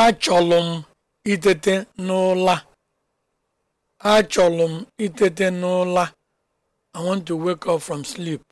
Achọlụ m itete n'ụla. Achọlụ m itete n'ụla. I want to wake up from sleep.